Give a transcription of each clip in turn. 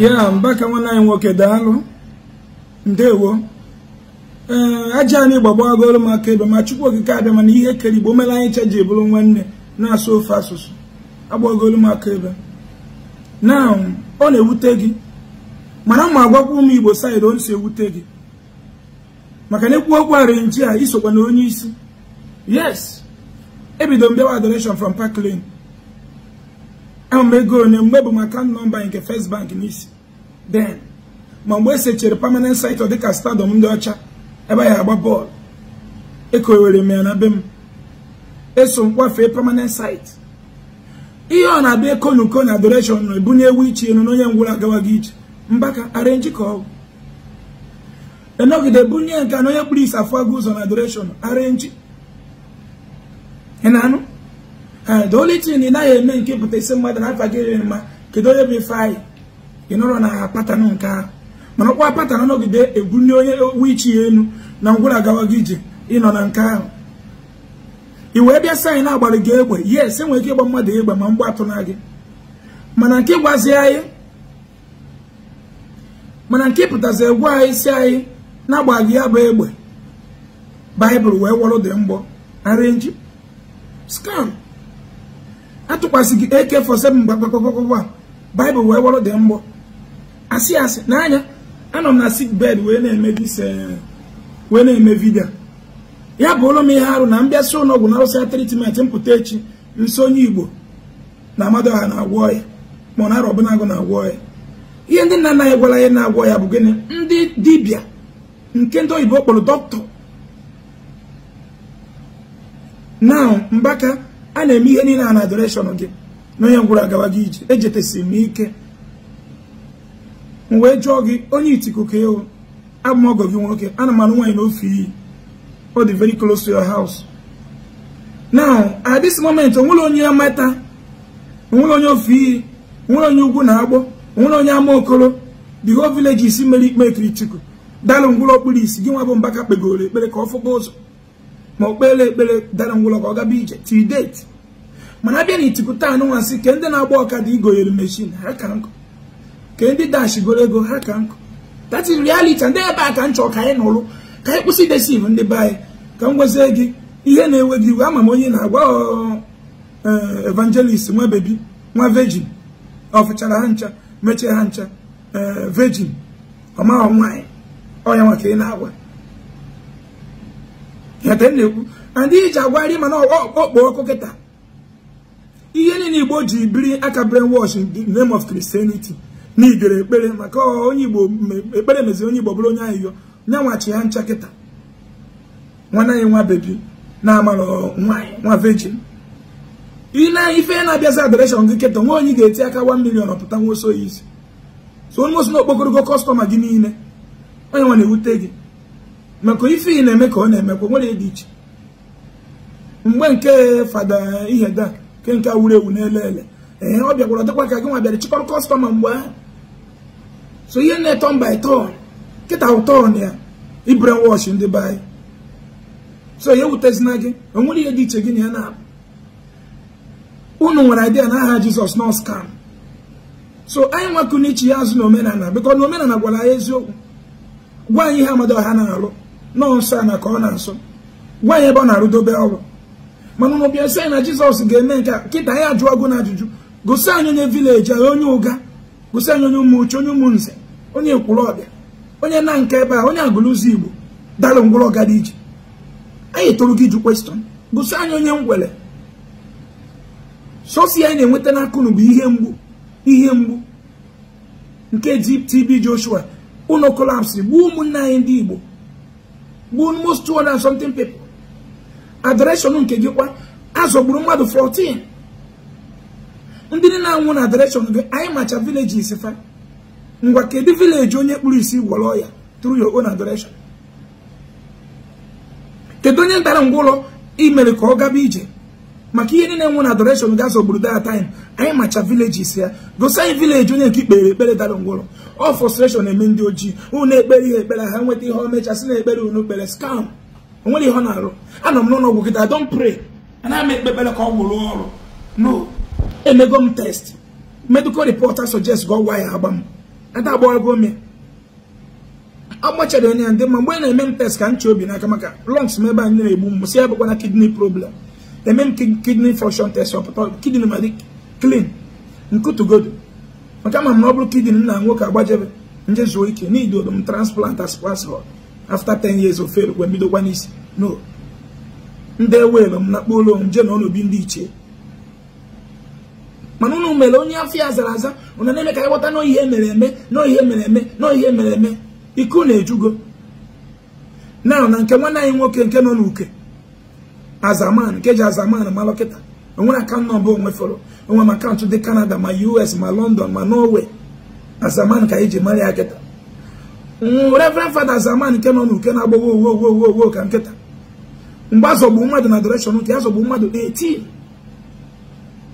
ya mbaka nwanne anyị nwoke daalụ ndewo ee aja anyị gbagba agụrụ m aka ebe ma chukwu okike mana ihe kere igbo mere anyị cha ji bụrụ nwanne na-asụ ofe asụsụ agbagolu m aka ebe na ọ na-ewute gị mana ma agwakwa ụmụ igbo saịdị o si ewute gị maka na ekwu okwu arinji a isokwa na onye isi yes ebido mbewa bịawa adoration from park lane ahụmego onye mgbe bụ maka nọmba nke first bank n'isi den ma mgbe esechere permanent site dịka stadọm ndị ọcha ebe anyị agba bọọlụ ekowere m ya na be m eso m kwafee site ihe ọ na-abịa ekonuko na adoration na ebunye ewu iche elu na onye ngwụrụ agawaghị ije mbaka arenji ka ọgwụ enọgide bunye nke na onye kpụrụ isi afọ agụ ụzọ na adoration arenji ị na-anụ Eh, the only thing ị naghị eme nke pụta isi mmadụ na afagịrị mma kedu onye bụ ife anyị nọrọ na patana nke ahụ mana ọkwa patana nọgide ebuli onye wichi ya elu na ngwụra gawa ije ịnọ na nke ahụ ị wee bịa sayị na-agbara gị egbe yes enwere ike ịgba mmadụ egbe ma mgbe atụna gị mana nke gwazi anyị mana nke pụtazi egwu anyị isi anyị na-agba gị ya bụ egbe baịbụl wee wọrọ dị mgbọ arịnji scam atụkwasị gị AK47 mgbagbagbagbagba baịbụl wee wọrọ dị mgbọ asị asị n'anya anọ m na sik bed wee na-eme dise eh, wee na-eme vidio ya bụ ụlọ m ihe arụ na mbịasị ụlọọgwụ na arụsị tritment mpụta echi nso onye igbo na ha na-agwọ ya ma ọ na arọbụnagụ na-agwọ ya ihe ndị nna anaghị gwara ya na-agwọ ya bụ gịnị ndị dibịa nke ndị oyibo kpọrọ dọkịta na mbaka a na-eme ihe niile a na adoreshọn gị na onye ngwụrụ agawa gị ije ejetesiri m ike m wee jụọ gị onye itiku ka ewu abụ ọgọ gị nwoke ana m anụ nwaanyị n'ofe iyi ọ dị very close to your house now at this moment onwere onye amata onwere onye ofe iyi onwere onye ugwu na agbọ onwere onye ama okoro the whole village isi mere ikpe ekiri chukwu dalụ ngwụlọ okpuru isi gị nwa bụ mbaka kpegoro ekpere ka ọ fụkpa ụzọ ma o kpere ekpere dalụ ngwụlọ ka ọ gaba ije till date mana abịa na itikuta anụ ke ndị na-agba ọkada igoyere meshin ha ka nkụ ke ndị dash ego ha ka nkụ that is ndị ebe a ka m ka anyị nụrụ ka anyị kwụsị idesiv ndị be anyị ka m gwezie gị ihe na-ewe gị iwe ama m onye na-agwa eh, evangelist nwa bebi nwa vejin ọfụchara ha ncha mechie ha ncha eh, vejin ọmaghọ nwaanyị ọya nwa ka ị na-agwa ya ka m na-ekwu na ndị iji agwarị mana ọkpọ ọkụ kịta ihe niile igbo ji biri aka brainwash in the name of Christianity na igere ekpere maka onye igbo ekpere meziri onye igbo bụrụ onye ahịhịọ nya nwachi ya ncha kịta nwanne ya nwa bebi na-amara nwa vejin ile ife na-abịazi adareshọn gị kịta nwa onye ga-eti aka 1 million pụta nwa oso ya isi so onye osi na okpokorogo kọstọma gị niile onye nwa na-ewute gị maka ife ị na-eme ka ọ na-emekwa nwere dị iche mgbe nke fada ihe iheda nke nke wuru ewu n'ele ele ee ọ bịagwara dịkwa ka gị nwa bịara chịkọrọ kọstọma mgbe ahụ so ihe na etọ mba eto kịta ụtọ na ya ibren wọch ndị be so ihe wutezina gị o nwere ihe dị iche gị na ya na unu nwere idea na aha jizọs nọ skam so anyị nwakụ iche ya azụ na omenala biko na omenala gwara ya eziokwu gwa anyị ihe amado ọha na-alụ nọọ nsọ a na ka ọ na-asọ gwa anyị ebe ọ na-arụdobe ọrụ mana ụnụ bịa sị na jizọs ga-eme nke kịta ya jụọ gụ na ajụjụ gosi anyị onye vileji anyị onye ụga gosi anyị onye ụmụuche onye ụmụnze onye ekwuru ọbịa onye na nke ebe a onye agụlụzi igbo dalụ ngwụrọga dị iji anyị tụrụ gị ju kwestọn gosi anyị onye ngwele sosi anyị na-enweta n'aka unu bụ ihe mgbu ihe mgbu nke TB Joshua ụlọ kolapsị gbuo ụmụnne anyị ndị igbo gbuo most 200 something people adoration nke gị kwa azọgburu mmadụ 14 ndị niile na-anwụ na adoration gị anyị macha vileji fa ngwa kedu vileji onye kpụrụ isi gwọrọ ya tru your own adoration kedu onye ntara ngwa ụlọ imere ka ọ gaba ije maka ihe niile nwụ na adoration gị azọgburu that time anyị macha vileji ya gosi anyị vileji onye nke ikpere ekpere dara ngwa ụlọ ọ frustration eme ndị ojii unu ekpere ihe ekpere ha nweta ihe ọmechasị na ekpere unu kpere scam onwere ihe ọ na-arụ anọ m n'ụlọ gị don pray ana m ekpe ka ọ gwụrụ ọrụ no emego m test medical reporter suggest ga gwa ya agba m ada agbago m agbachara onye ndị mma mgbe a na-eme m test ka m obi n'aka maka lungs m ebe anyị na-egbu m si bụkwa na kidney problem eme m kidney function test ọpụta kidney ma dị clean nkutugodo maka ama m na ọ bụrụ kidney m na nwoke agbajebe nje zuo ike n'idodo m transplant as passport after 10 years of fail kwa mbidokwa n'isi no ndị ewelu m na kpolo m jee na ọnobi ndị ichie mana unu mere onye ya zara aza ụna na-eme ka ịghọta na ihe mere eme na ihe mere eme na ihe mere eme iku na-ejugo na na nke nwanne anyị nwoke nke nọ n'uke azaman nke ji azaman ma lọkịta onwere akaụntụ nọmba onwe fọrọ onwe m akaụntụ dị kanada ma US ma London ma Norway azaman ka anyị e ji mara ya kịta reverend fada zaman nke nọ n'uke na-agbago owo ka nkịta mgbe azọgbu mmadụ na direction nke azọgbu mmadụ 18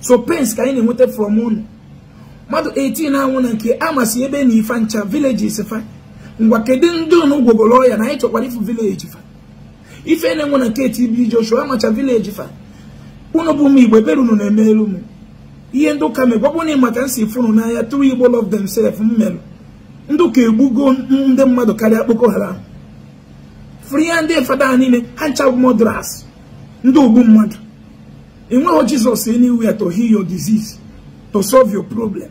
so pence ka anyị na-enweta from unu mmadụ 18 na-anwụ na nke amasị ebe na ife ncha villages fa ngwa kedu ndị unu gwogoro ọya na anyị chọkwara ifu village fa ife na-enwe na nke TB Joshua amacha village fa ụnụ bụ ụmụ igbo ebere unu na-eme elu m ihe ndị ụka megwagbu na maka nsi funu n'anya tụrụ igbo love themselves m merụ ndị ka egbugo ndị mmadụ karịa Boko Haram free ya ndị fada ha niile ha ndị ogbu mmadụ enweghị Jizọs anywhere to heal your disease to solve your problem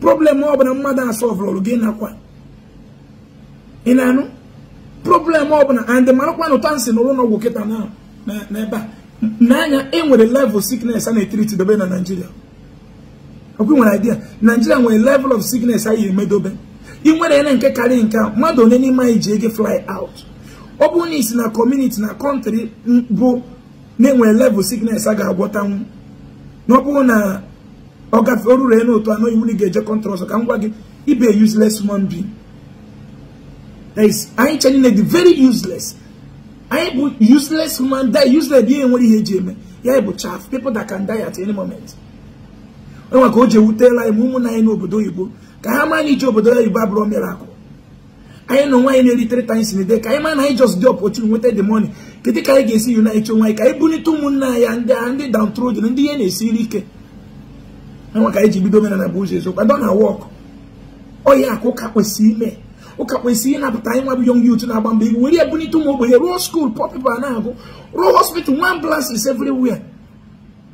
problem ọbụla mmadụ asọvụrụ gị nakwa ị na-anụ problem ọbụla and marakwa na ụta nsị n'ụlọ ọgwụ kịta ebe a n'anya e nwere level sickness a na-etiriti dobe na Naịjirịa ọkwa nwere idea Naịjirịa nwere level of sickness anyị emedobe i nwere na nke karịrị nke mmadụ onye n'ime anyị ji ego fly out ọ bụ na isi na kọmuniti na kọntrị bụ na-enwe level sickness a ga-agwọtanwu na ọ bụrụ na ọ gafe orure n'otu anọ iwu na ị ga-eje kọntrị ọzọ ka m gwa gị ibe useless human being anyị chenile dị very useless anyị bụ useless human die useless dị ihe nwere ihe eji eme ya bụ chaff people that can die at any moment enwe ka o ji ewutela anyị ma ụmụnna anyị n'obodo oyibo ka ha ma na iji obodo oyibo abụrụ miracle anyị nọ nwaanyị na-eritere times in a day ka anyị na anyị just dị opportunity nweta the money kedu ka anyị ga-esi unite onwe anyị ka anyị bulite ụmụnna ya ndị a ndị downtrodden ndị ihe na-esiri ike enwe ka anyị ji bido omenala bụ ụzọ eziokwu adọ na wọk ọya akụ ụka kwesịrị ime ụka kwesịrị ịnapụta anyị nwa bụ yong yut na-agba mbọ iwu were ebulite ụmụ ogbenye ruo skuul pọpịpa na-agụ ruo hospital nwa ambulance everywhere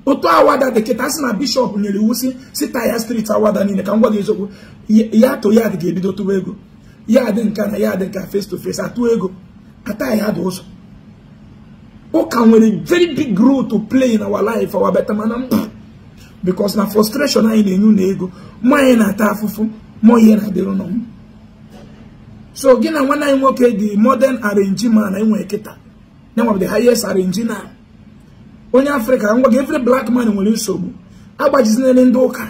otu awada dị kịta sị na bishọp nyere iwu si si taya striti awada niile ka m gwa gị eziokwu ya to ya dị ga-ebido tụwa ego ya dị nka na ya dị nka face to face atụ ego ataghị ha dị ụzọ ụka nwere very big role to play in our life our better mana because na frustration anyị na-enye na ego ma anyị na-ata afụfụ ma ihe na-adịrị nọ m so gị na nwanne anyị nwoke dị modern arrangement na enwe kịta na enwe the highest arrangement onye afrịka ngwa gị efere black man nwere nsogbu agbajizinere ndị ụka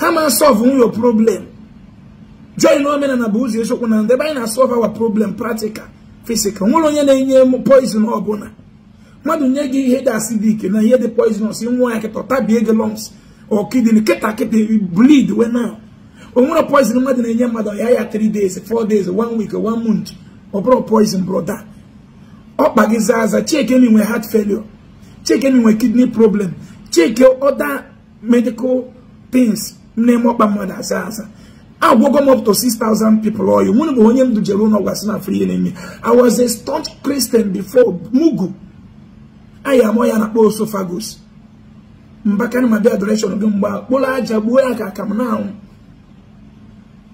ha ma solve nwunye problem join omenala bụ ụzọ eziokwu na ndị ebe anyị na-asọlve awa problem practical physical nwere onye na-enye poison ọbụla mmadụ nye gị ihe dị acidic na ihe dị poisonous nwa ya kịta tabie gị lumps or kịta kịta bleed we na o nwere poison mmadụ na-enye mmadụ ya ya 3 days 4 days 1 week 1 month ọ bụrụ poison brother ọ kpa gị zaa aza nwe nwere heart failure Chike nwere kidney problem Chike other medical things na-eme ọkpa mmadụ asa asa agwogo m up to 6,000 people ọyụ mụ bụ onye m dujere ụlọ gwasị na free enemy I was a staunch Christian before mugu anyị amụ ya na kpọ osophagus mbakarị ma bịa direction gị aja gbuo ya ka aka m na-anwụ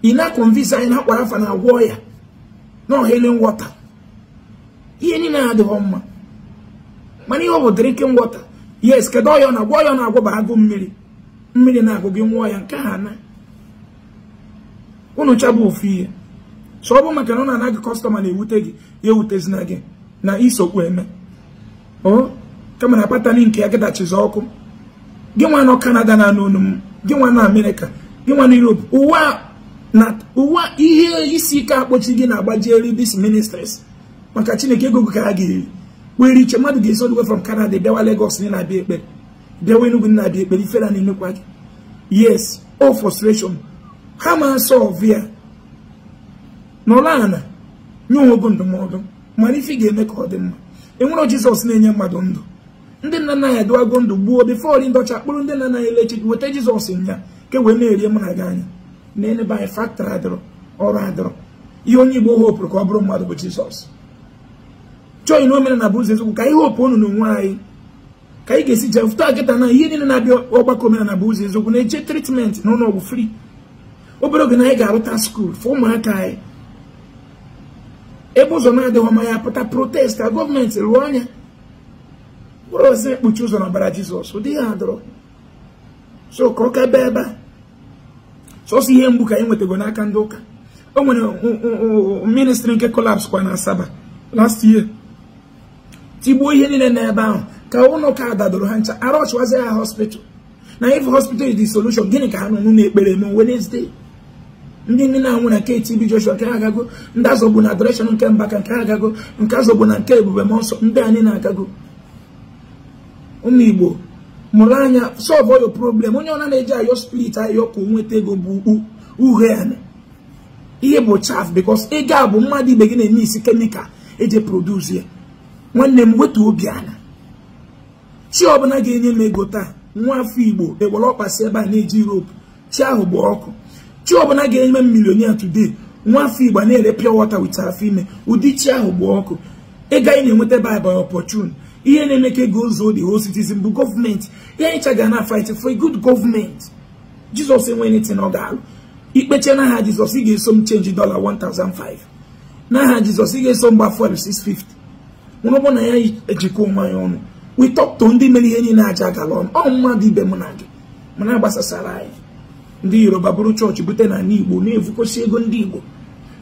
ị na-akọnvisi anyị na-akwara afa na agwọ ya na wọta water ihe niile adịghị mma mana ihe ọ bụ drinking water yes kedu ọya na agwọ ọya na agwa bụ agụ mmiri mmiri na-agụ gị nwụọ ya nke ha na unu chabụ ofu ihe so ọ bụ maka na ọ na anaghị kọstọma na-ewute gị ya ewutezina gị na isokwu eme o kama na patani nke ya gịdachizi ọkụ gị nwa nọ kanada na anụ m gị nwa na amerịka gị nwa na europe ụwa na ụwa ihe isi ike akpọchi gị na eri dis ministres maka chineke ego gị ka ha ga-eri were iche mmadụ ga-esi odwe from Canada bịawa Lagos na na-abịa ekpere bịawa Enugu na-abịa ekpere ifela na emekwa gị yes o frustration ha ma solve ya nọrọ ala nye onwe bụ ndụmọdụ mana ife ga-eme ka ọ dị mma enwere Jizọs na-enye mmadụ ndụ ndị nna nna anyị adịwago ndụ gbuo bifọri ndị ọcha kpụrụ ndị nna na anyị leche weta Jizọs nya ke wee na-eri mụ na gị anya na enebe anyị faktọrị adịrọ ọrụ adịrọ ihe onye Igbo hopụrụ ka ọ bụrụ mmadụ bụ Jizọs chọọ na omenala bụ ụzọ eziokwu ka anyị hopu unu n'onwe anyị ka anyị ga-esi jee fụta na ihe niile na-abịa ọgbakọ na bụ ụzọ eziokwu na-eche tritmenti na ụlọọgwụ fri obere oge na anyị ga-arụta skuul fọ ụmụaka anyị ebe ụzọ na-adịghị ọma ya pụta protest ka gọọmenti rụọ anya mkpụrụ ozi ekpuchi ụzọ na ọbara jizọs ụdị ya adọrọ so ka ọ ka ebe so a ihe mgbu ka anyị nwetago n'aka ndị ụka o nwere ministri nke kwa na asaba last year tigbuo ihe niile n'ebe ahụ ka ụlọ ụka dadoro ha ncha arọchwazi ha hospital na if hospital is the solution gịnị ka ha nọ n'ụlọ ekpere eme Wednesday ndị nne na-anwụ na KTB Joshua nke ha agago ndị azọgbu na adoration nke Mbaka nke ha agago nke azọgbu na nke Ebube Mọnsọ ndị anyị na-agago ụmụ Igbo mụrụ anya solve your problem onye ọna na-eji ayọ spirit ayọ ka onweta nweta ego bụ ukpu uhe ihe bụ chaf bikos ego a bụ mmadụ ibe gị na-eme isi kemikal eji produce ya nwanne m wetu obi ala chi ọbụla ga-enye m ego taa nwa afọ igbo ewere ọkpasị ebe a na-eji rope chi ahụ bụ ọkụ chi ọbụla ga-enye m milionia today nwa afọ igbo na-ere pure water with afọ ime ụdị chi ahụ bụ ọkụ ịga ị na-enweta bible opportune ihe na-eme ka ego ụzọ dị whole citizen bụ gọọmenti ihe anyị ga na fight for a good gọọmenti jizọs enwe anything ọ ga-alụ ikpeche n'aha jizọs ị ga-eso m chenji dollar 1005 n'aha jizọs ị ga-eso m gba 650 ọ na ya ejikwa onwe anyị ọnụ witọpto ndị mere ihe niile aja agala ọnụ ọ mmadụ ibe mụ na gị mana gbasasara anyị ndị yoruba bụrụ chọọchị bute na ala igbo na-evukosi ego ndị igbo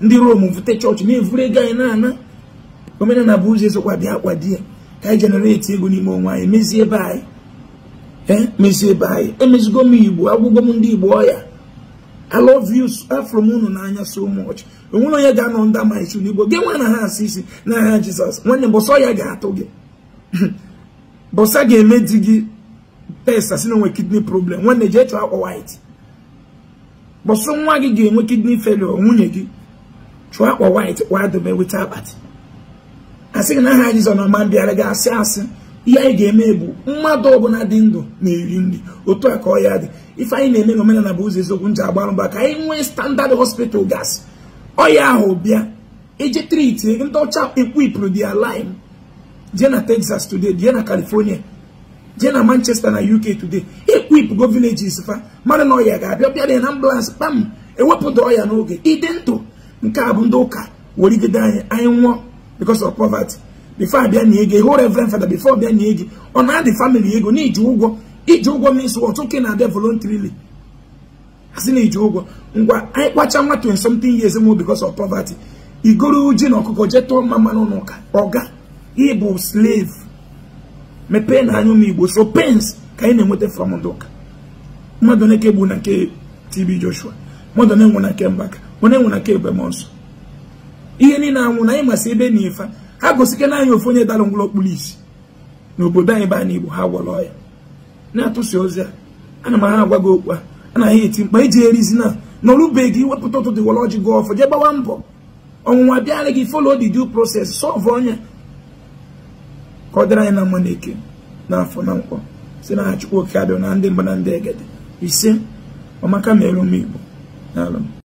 ndị rom vute chọọchị na-evuru ego anyị na-ana omenala bụ ụzọ ezokwa bịa akwa di ya ka anyị jenereti ego n'ime onwe anyị mezie ebe anyị emezie ebe anyị emezigo m igbo agwụgo m ndị igbo ọya I love you so from unu n'anya so much onwere onye ga-anọ ndị ama isu n'igbo gị nwa na ha asị isi jesus Jizọs nwanne bọsọ ya ga-atụ gị bọsa ga-eme di gị test asị na onwe kidney problem nwanne jee chọọ akwa white bọsọ nwa gị ga-enwe kidney failure nwunye gị chụọ akwa white kwa dobe weta akpati asị gị na aha Jizọs na ọma bịara gị asị asị ihe anyị ga-eme bụ mmadụ ọbụla dị ndụ na-eri nri otu a ka ọ ya dị ife anyị na-eme n'omenala bụ ụzọ eziokwu nji agbarụ mba ka anyị nwee standard hospital gas ọya ahụ bịa eje triti ndị ọcha ekwipụrụ dia line jee na Texas today jee na California jee na Manchester na UK today ekwip go villages fa mmadụ na ọya ga-abịa bịa na ambulance kpam ewepụta ọya n'oge ịdị ndụ nke a bụ ndị ụka werigide anyị anyị nwụọ because of poverty before abịa na ego hụ reverend fada before abịa na ego ọ na-adị family ego na ụgwọ iji ụgwọ means what nwoke na-abịa voluntarily asị na iji ụgwọ ngwa anyị kpacha nwa 20 something years mo because of poverty igoro ji na ọkụkọ jee tụọ mma mmanụ n'ụka ọga ịbụ slave mepee na anya ụmụ igbo so pens ka anyị na-enweta fọm ndị mmadụ na-eke gbu na nke TB Joshua mmadụ na-enwe na nke Mbaka onye enwe na nke Ebemonso ihe niile anwụ na anyị masị ebe na ife ha gosike na anyị ofu onye dalụ ngwụlọ okpuru isi n'obodo anyị be anyị igbo ha gwọrọ ya na-atụsi ozi a ana m agha agwa gị okwu a anaghị eti mkpa iji erizi na n'ọrụbeghị gị wepụta ụtụ dịwọlọji gị ọfọ jee gbawa mbọ ọnwụnwa bịara gị folo di due process sọvụ ọnya ka ọ dịrị anyị na mma na afọ na nkwọ si na ha chukwu oke abịa na ndị mba na ndị egede ise ọmaka merụ m igbo na alụ